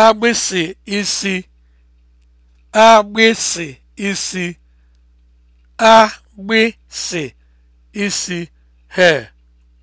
agbịsị isi agbịsị isi agbịsị isi hair